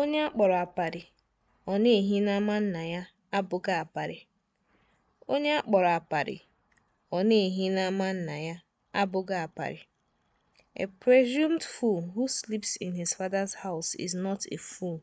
Onye a kpọrọ aparị ọ na-ehi n'ama nna ya abụghị Onye a kpọrọ na-ehi nna ya abụghị aparị. A presumed fool who sleeps in his father's house is not a fool.